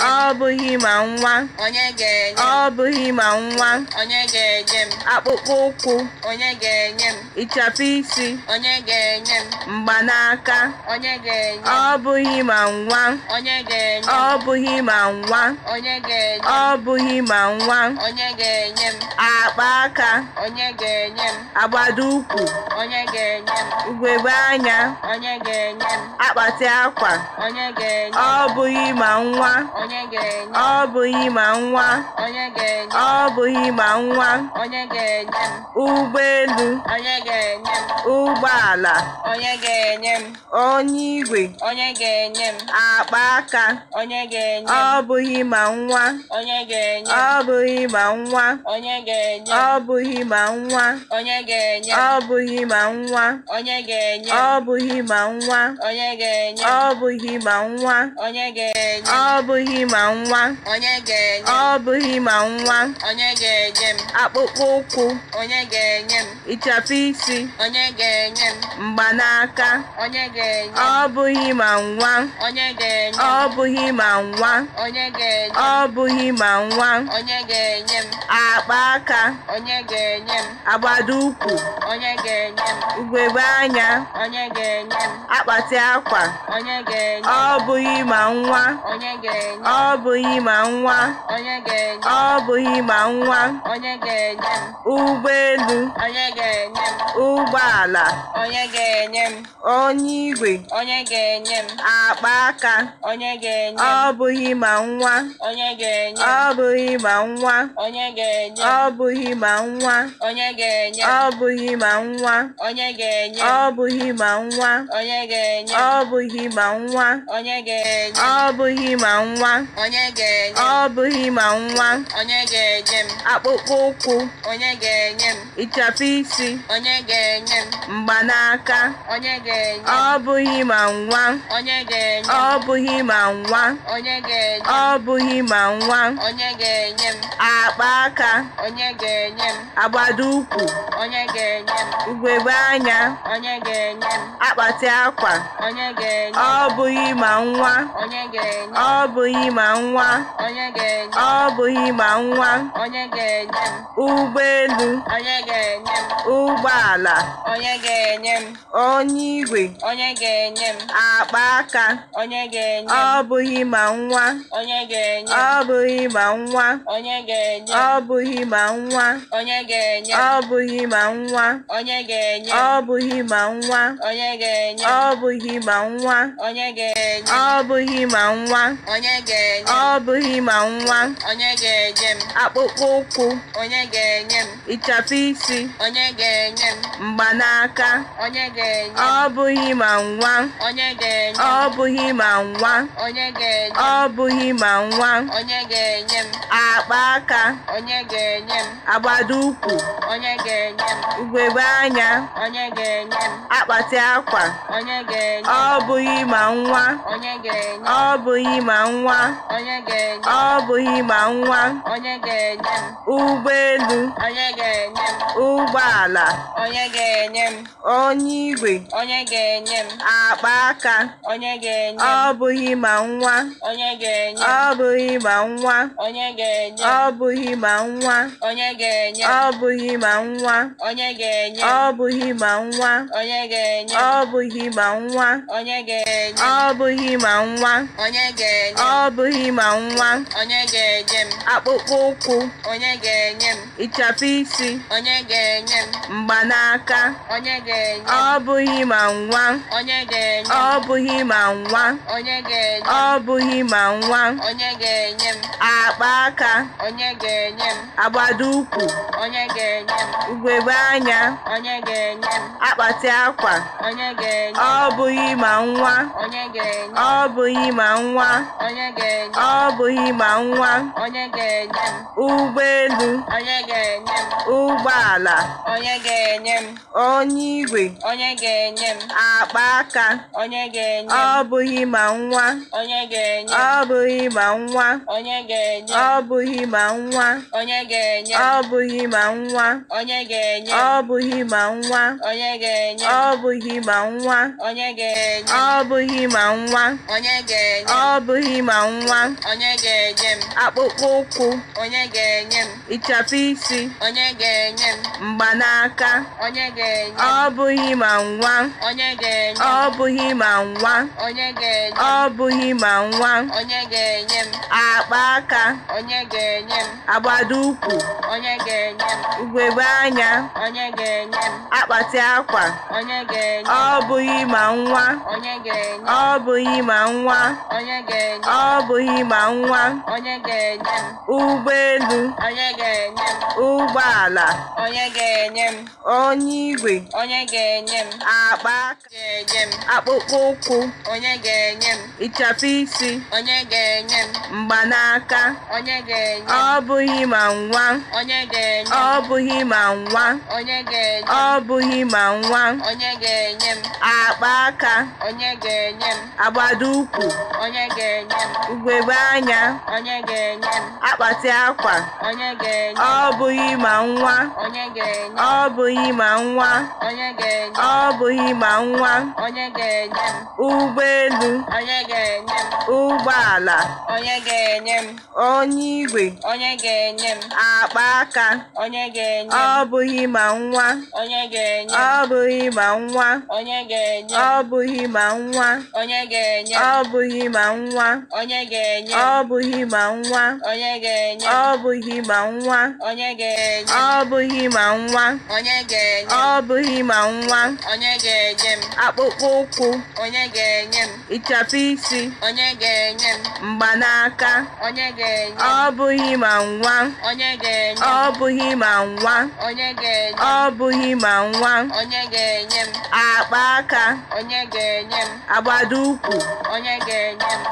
um, ọ bụghị ma nwa onye ga-enye ọ bụghị ma nwa onye ga-enye m akpụkpọ ụkwụ onye ga-enye m ịchapụ isi onye ga-enye m mgbanaka onye ga-enye ọ bụghị ma nwa onye ga-enye ọ bụghị ma nwa onye ga-enye ọ bụghị ma nwa onye ga-enye m akpa aka onye ga-enye m agbada ụkwụ onye ga-enye m ugegbe anya onye ga-enye m akpati akwa onye ga-enye ọ bụghị ma nwa onye ga enye ọ bụghị ma nwa onye ga enye m akpụkpọ ụkwụ onye ga enye m ịchapụ isi onye ga enye m mgbanaka onye ga enye ọ bụghị ma nwa onye ga enye ọ bụghị ma nwa onye ga enye ọ bụghị ma nwa onye ga enye m akpa onye ga enye m ụkwụ onye ga enye m anya onye ga enye akpati akwa onye ga enye ọ onye ga ọ bụghị ma nwa ọ bụghị ma nwa ụgbọelu ụgbọala onye igwe akpa aka ọ bụghị ma nwa ọ bụghị ma nwa ọ bụghị ma nwa ọ bụghị ma nwa ọ bụghị ma nwa ọ bụghị ma nwa ọ bụghị ma nwa onye ga-enye ọ bụghị ma nwa onye ga-enye m akpụkpọ ụkwụ onye ga-enye m ịchafụ isi onye ga-enye m mgbanaka onye ga-enye m ọ bụghị ma nwa onye ga-enye m ọ bụghị ma nwa onye ga-enye m ọ bụghị ma nwa onye ga-enye m akpa aka onye ga-enye m agbada ukwu. onye ga-enye m ugegbe anya onye ga-enye m akpati akwa onye ga-enye m ọ bụghị ma nwa onye ga-enye m ọ bụghị ma nwa ọ bụghị ma nwa onye ga-enye m ụgbọelu onye ga ụgbọala onye igwe onye ga akpa aka onye ọ bụghị ma nwa onye ga ọ bụghị ma nwa onye ga ọ bụghị ma nwa onye ga ọ bụghị ma nwa onye ga-enye ọ bụghị ma nwa onye ga ọ bụghị ma nwa ọ bụghị ma nwa onye ga-enye m ọ bụghị ma nwa onye ga-enye m akpụkpọ ụkwụ onye ga-enye m ịchapụ isi onye ga-enye m mgbanaka onye ga-enye m ọ bụghị ma nwa onye ga-enye m ọ bụghị ma nwa onye ga-enye m ọ bụghị ma nwa onye ga-enye m akpa aka onye ga-enye m agbada ukwu. onye ga-enye m ugegbe anya onye ga-enye m akpati akwa onye ga-enye m ọ bụghị ma nwa onye ga-enye m ọ bụghị ma nwa nwa ọ bụghị ịgba nwa ụgbọelu ụgbọala onye igwe akpa aka ọ bụghị ịgba nwa ọ bụghị ịgba nwa ọ bụghị ịgba nwa ọ bụghị ịgba nwa ọ bụghị ịgba nwa ọ bụghị ịgba nwa ọ bụghị ịgba nwa Ọ bụghị ma nwa onye ga-enye m akpụkpọ ụkwụ onye ga-enye m ịchafụ isi onye ga-enye m mgbanaka onye ga-enye m ọ bụghị ma nwa onye ga-enye m ọ bụghị ma nwa onye ga-enye m ọ bụghị ma nwa onye ga-enye m akpa aka onye ga-enye m ụkwụ onye anya akpati akwa onye ọ bụghị ma nwa ọ bụghị ma nwa onye ga-enye ọ bụghị ma nwa onye ga-enye m ụgbọelu onye ga-enye m ụgbọala onye ga-enye m onye igwe onye ga-enye m akpa aka onye ga-enye m ọ bụghị ma nwa onye ga-enye m ọ bụghị ma nwa onye ga-enye m ọ bụghị ma nwa onye ga-enye m ọ bụghị ma nwa onye ga-enye m ọ bụghị ma nwa onye ga-enye m ọ bụghị ma nwa onye ga-enye m ọ bụghị ma nwa onye ga-enye m ọ bụghị ma nwa onye ga akpụkpọ ụkwụ onye ga-enye m isi mgbanaka onye ọ bụghị ma nwa onye ọ bụghị ma nwa onye ga-enye ọ bụghị ma nwa onye ga-enye m akpa aka onye ga-enye m agbada ụkwụ onye ga-enye m ugegbe anya onye akpati akwa onye ga ma nwa ọ bụghị ma nwa onye ga-enye m ụgbọelu onye ga-enye m ụgbọala onye ga-enye m onye igwe onye ga-enye m akpa aka onye ga-enye m ọ bụghị ma nwa onye ga-enye m ọ bụghị ma nwa onye ga-enye m ọ bụghị ma nwa onye ga-enye m ọ bụghị ma nwa onye ga-enye m ọ bụghị ma nwa onye ga-enye m ọ bụghị ma nwa onye ga-enye m ọ bụghị ma nwa onye ga-enye m ọ bụghị ma nwa onye ga-enye m akpụkpọ ụkwụ onye ga-enye m ịchafụ isi onye ga-enye m mgbanaka onye ga-enye m ọ bụghị ma nwa onye ga-enye m ọ bụghị ma nwa onye ga-enye m ọ bụghị ma nwa onye ga-enye m akpa aka onye ga-enye m agbada ukwu. onye ga-enye m ugegbe anya onye ga-enye m akpati akwa onye ga-enye m ọ bụghị ma nwa onye ga-enye m ọ bụghị ma nwa onye ga-enye m ọ bụghị enyi ma nwa onye onye onye igwe akpa aka akpụkpọ ụkwụ onye isi onye ga mgbanaka ọ bụghị ma nwa ọ bụghị ma nwa ma nwa akpa aka agbado ga ukwu ebe anya onye ga-enye m akpati akwa onye ga-enye ọ bụghị ma nwa onye ga-enye ọ bụghị ma nwa onye ga-enye ọ bụghị ma nwa onye ga-enye m ụgbọelu onye ga-enye m ụgbọala onye ga-enye m onye igwe onye ga-enye m akpa aka onye ga-enye ọ bụghị ma nwa onye ga-enye ọ bụghị ma nwa onye ga-enye ọ bụghị ma nwa onye ga-enye ọ bụghị ma nwa onye ga-enye ọ bụghị ma nwa ọ bụghị ma nwa ọ bụghị ma nwa ọ bụghị ma nwa akpụkpọ ụkwụ ịchapụ isi mgbanaka ọ bụghị ma nwa ọ bụghị ma nwa ọ bụghị ma nwa akpa aka agbada ụkwụ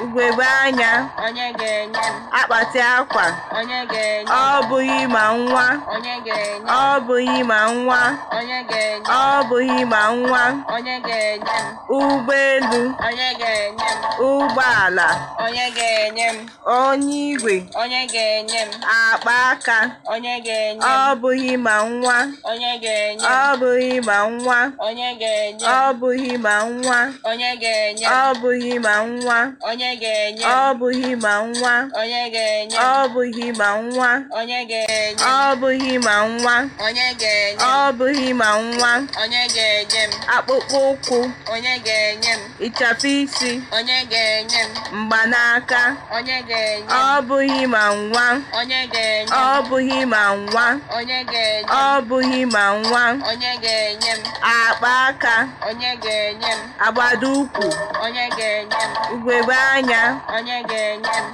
ugegbe anya onye ga-enye m akpati akwa onye ga-enye ọ bụghị ma nwa onye ga-enye ọ bụghị ma nwa onye ga-enye ọ bụghị ma nwa onye ga-enye m ụgbọelu onye ga-enye m ụgbọala onye ga-enye m onye igwe onye ga-enye m akpa aka onye ga-enye m ọ bụghị ma nwa onye ga-enye m ọ bụghị ma nwa onye ga-enye m ọ bụghị ma nwa onye ga-enye m ọ bụghị ma nwa onye ga-enye m bụghị ma nwa onye ga-enye ọ bụghị ma nwa onye ga-enye ọ bụghị ma nwa onye ga-enye ọ bụghị ma nwa onye ga-enye m akpụkpọ ụkwụ onye ga-enye m ịchapụ isi onye ga-enye m mgbanaka onye ga-enye ọ bụghị ma nwa onye ga-enye ọ bụghị ma nwa onye ga-enye ọ bụghị ma nwa onye ga-enye m akpa aka onye ga-enye m agbada ukwu onye ga-enye m ugegbe anya onye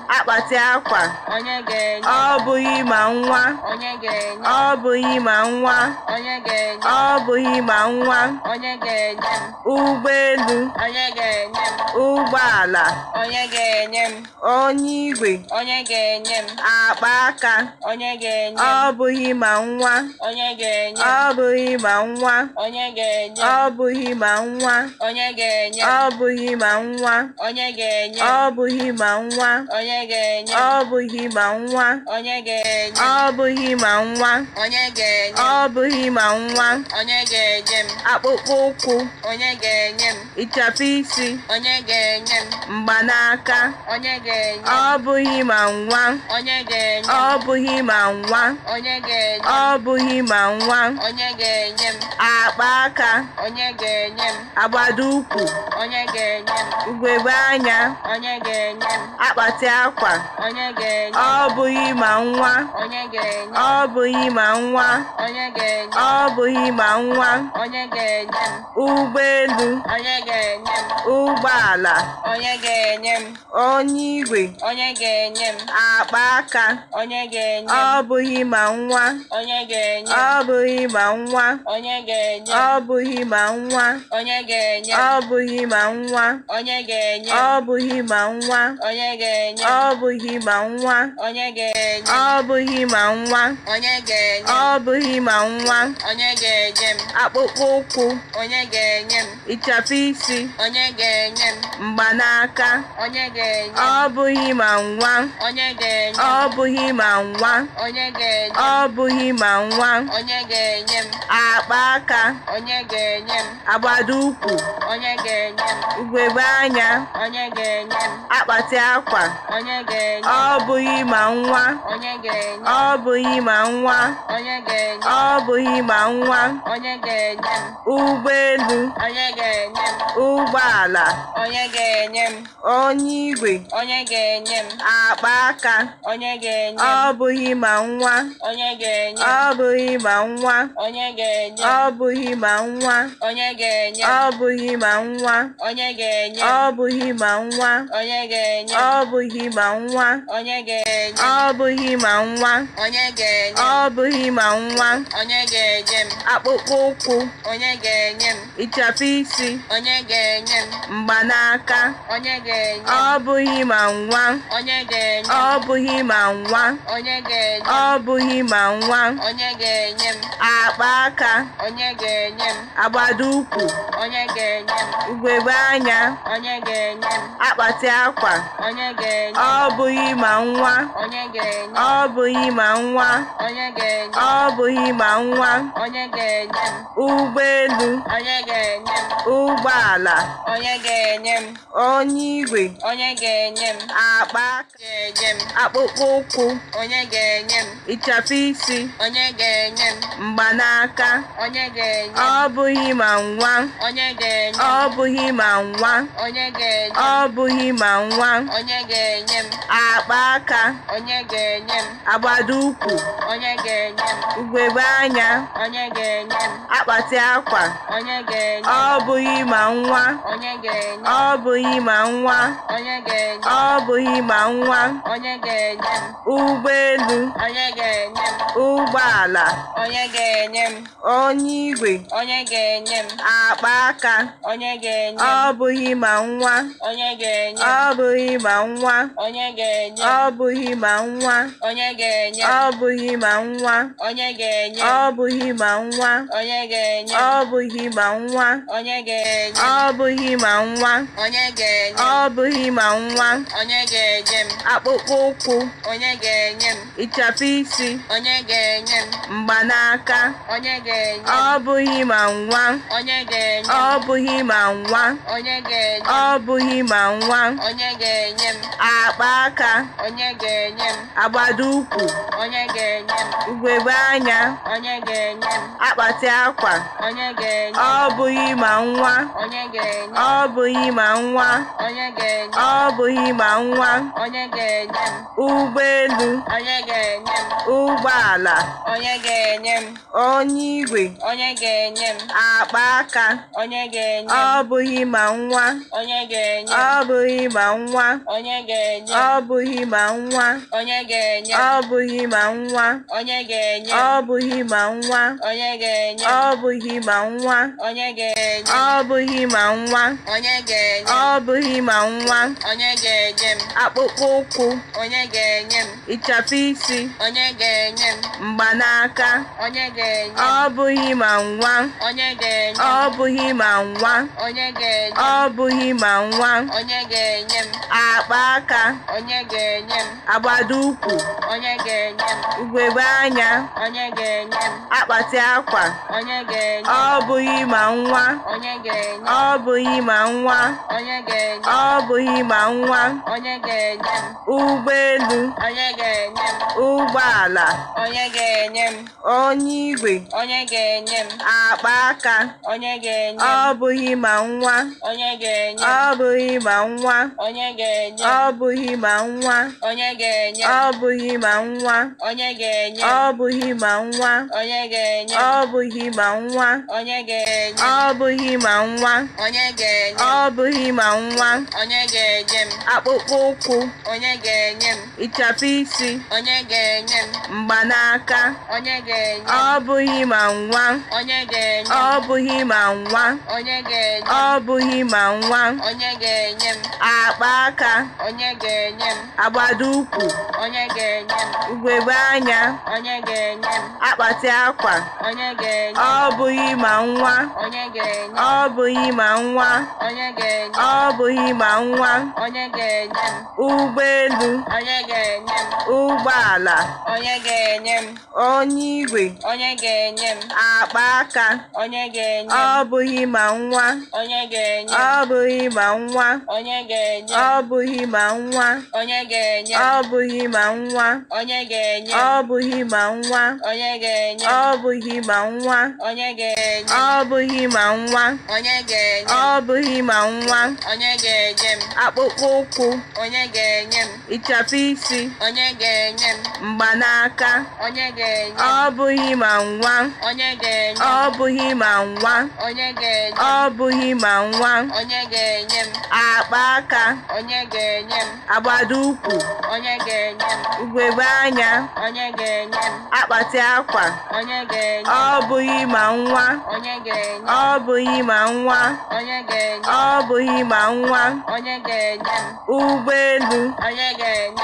akpati akwa ọ bụghị ma nwa ọ bụghị ma nwa ọ bụghị ma nwa ụgbọelu ụgbọala onye igwe akpa aka ọ bụghị ma nwa ọ bụghị ma nwa ọ bụghị ma nwa ọ bụghị ma nwa ọ bụghị ma nwa nwa onye ga-enye ọ bụghị ma nwa onye ga-enye ọ bụghị ma nwa onye ga-enye ọ bụghị ma nwa onye ga-enye m akpụkpọ ụkwụ onye ga-enye m ịchafụ isi onye ga-enye m mgbanaka onye ga-enye ọ bụghị ma nwa onye ga-enye ọ bụghị ma nwa onye ga-enye ọ bụghị ma nwa onye ga-enye m akpa aka onye ga-enye m agbada ukwu onye ga-enye m ugegbe anya onye ga-enye m akpati akwa ọ bụghị ma nwa ọ bụghị ma nwa ọ bụghị ma nwa ụgbọelu ụgbọala onye igwe akpa aka ọ bụghị ma nwa ọ bụghị ma nwa ọ bụghị ma nwa ọ bụghị ma nwa ọ bụghị ma nwa onye ga-enye ọ bụghị ma nwa onye ga-enye ọ bụghị ma nwa onye ga-enye ọ bụghị ma nwa onye ga-enye m akpụkpọ ụkwụ onye ga-enye m ịchafụ isi onye ga-enye m mgbanaka onye ga-enye ọ bụghị ma nwa onye ga-enye ọ bụghị ma nwa onye ga-enye ọ bụghị ma nwa onye ga-enye m akpa aka onye ga-enye m agbada ukwu onye ga-enye m ugegbe anya onye ga-enye m akpati aka akwa ọ bụghị ma nwa ọ bụghị ma nwa ọ bụghị ma nwa ụgbọelu ụgbọala onye igwe akpa aka ọ bụghị ma nwa ọ bụghị ma nwa ọ bụghị ma nwa ọ bụghị ma nwa ọ bụghị ma nwa ọ bụghị ma nwa onye ga-enye ọ bụghị ma nwa onye ga-enye ọ bụghị ma nwa onye ga-enye m akpụkpọ ụkwụ onye ga-enye m ịchafụ isi onye ga-enye m mgbanaka onye ga-enye ọ bụghị ma nwa onye ga-enye ọ bụghị ma nwa onye ga-enye ọ bụghị ma nwa onye ga-enye m akpa aka onye ga-enye m agbado ukwu. onye ga-enye m ugegbe anya onye ga-enye m akpati akwa onye ọ bụghị ma nwa ọ bụghị ma nwa ọ bụghị ma nwa ụgbọelu ụgbọala onye igwe akpa akpụkpọ ụkwụ ịchafụ isi mgbanaka ọ bụghị ma nwa ọ bụghị ma nwa ọ bụghị ma nwa onye ga-enye m akpa aka onye ga-enye m agbada ukwu onye ga-enye m ugegbe anya onye ga-enye m akpati akwa onye ga-enye ọ bụghị ma nwa onye ga-enye ọ bụghị ma nwa onye ga-enye ọ bụghị ma nwa onye ga-enye m ụgbọelu onye ga-enye m ụgbọala onye ga-enye m onye igwe onye ga-enye m akpa aka onye ga-enye m ọ bụghị ma nwa onye ga-enye m ọ bụghị ma nwa onye ga-enye ọ bụghị ma nwa onye ga-enye ọ bụghị ma nwa onye ga-enye ọ bụghị ma nwa onye ga-enye ọ bụghị ma nwa onye ga-enye ọ bụghị ma nwa onye ga-enye ọ bụghị ma nwa onye ga-enye m akpụkpọ ụkwụ onye ga-enye m ịchafụ isi onye ga-enye m mgbanaka onye ga-enye ọ bụghị ma nwa onye ga-enye ọ bụghị ma nwa onye ga-enye ọ bụghị ma nwa onye ga-enye ga-enye m akpa aka onye ga-enye m agbada ukwu onye ga-enye m ugegbe anya onye ga-enye m akpati akwa onye ga-enye ọ bụghị ma nwa onye ga-enye ọ bụghị ma nwa onye ga-enye ọ bụghị ma nwa onye ga-enye m ụgbọelu onye ga-enye m ụgbọala onye ga-enye m onye igwe onye ga-enye m akpa aka onye ga-enye m ọ bụghị ma nwa onye ga-enye m ọ bụghị ma nwa onye ga-enye ọ bụghị ma nwa onye ga-enye ọ bụghị ma nwa onye ga-enye ọ bụghị ma nwa onye ga-enye ọ bụghị ma nwa onye ga-enye ọ bụghị ma nwa onye ga-enye ọ bụghị ma nwa onye ga-enye m akpụkpọ ụkwụ onye ga-enye m ịchafụ isi onye ga-enye m mgbanaka onye ga-enye ọ bụghị ma nwa onye ga-enye ọ bụghị ma nwa onye ga-enye ọ bụghị ma nwa onye ga-enye m a akpa aka onye ga-enye m agbada ukwu onye ga-enye m ugegbe anya onye ga-enye m akpati akwa onye ga-enye ọ bụghị ma nwa onye ga-enye ọ bụghị ma nwa onye ga-enye ọ bụghị ma nwa onye ga-enye m ụgbọelu onye ga-enye m ụgbọala onye ga-enye m onye igwe onye ga-enye m akpa aka onye ga-enye m ọ bụghị ma nwa onye ga-enye m ọ bụghị ma nwa onye ga-enye ga-enye ọ bụghị ma nwa onye ga-enye ọ bụghị ma nwa onye ga-enye ọ bụghị ma nwa onye ga-enye ọ bụghị ma nwa onye ga-enye ọ bụghị ma nwa onye ga-enye ọ bụghị ma nwa onye ga-enye m akpụkpọ ụkwụ onye ga-enye m ịchapụ isi onye ga-enye m mgbanaka onye ga-enye ọ bụghị ma nwa onye ga-enye ọ bụghị ma nwa onye ga-enye ọ bụghị ma nwa onye ga-enye m akpa aka onye ga-enye m agbada ukwu onye ga-enye m ugegbe anya onye ga-enye m akpati akwa onye ga-enye ọ bụghị ma nwa onye ga-enye ọ bụghị ma nwa onye ga-enye ọ bụghị ma nwa onye ga-enye m ụgbọelu onye ga-enye ụgbọala onye ga-enye m onye igwe onye ga-enye m akpa aka onye ga-enye ọ bụghị ma nwa onye ga-enye m ọ bụghị ma nwa onye ga ọ bụghị ma nwa onye ga ọ bụghị ma nwa ọ bụghị ma nwa ọ bụghị ma nwa ọ bụghị ma nwa akpụkpọ ụkwụ onye ga-enye m ịchafụ isi ga-enye m mgbanaka onye ga-enye ọ bụghị ma nwa onye ga-enye ọ bụghị ma nwa onye ga-enye ọ bụghị ma nwa onye ga-enye m akpa aka onye ga-enye m agbada ukwu onye ga-enye m ugegbe anya onye ga-enye m akpati akwa onye ga-enye ọ bụghị ma nwa onye ga-enye ọ bụghị ma nwa onye ga-enye ọ bụghị ma nwa onye ga-enye m ụgbọelu onye ga-enye m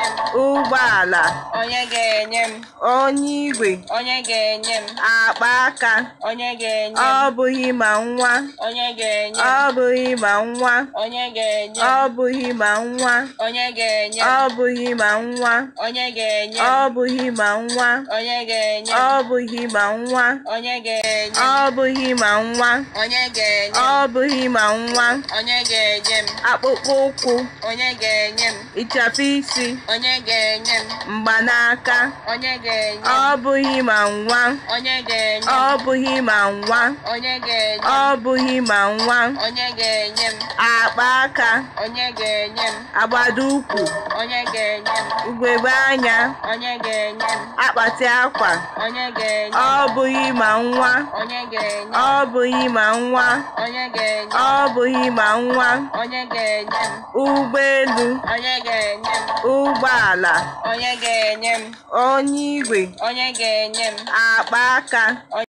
ụgbọala ala onye ga-enye m onye igwe onye ga-enye m akpa aka onye ga-enye m ọ bụghị ma nwa onye ga-enye m ọ bụghị ma nwa onye ga-enye m ọ bụghị ma nwa onye ga-enye m ọ bụghị ma nwa onye ga-enye m ọ bụghị ma nwa onye ga-enye m ọ bụghị ma nwa onye ga-enye m ọ bụghị ma nwa onye ga-enye m ọ bụghị ma nwa onye ga-enye m akpụkpọ ụkwụ onye ga-enye m ịchafụ isi onye ga-enye m mgbanaka onye ga-enye ọ bụghị ma nwa onye ga-enye ọ bụghị ma nwa onye ga-enye ọ bụghị ma nwa onye ga-enye m akpa aka onye ga-enye m agbada ukwu onye ga-enye m ugegbe anya onye ga-enye m akpati akwa onye ga-enye ọ bụghị ma nwa onye ga-enye ọ bụghị ma nwa onye ga-enye ọ bụghị ma nwa onye ga-enye m ụgbọelu onye ga-enye m ụgbọala onye onye m! onye ga-enye m akpa aka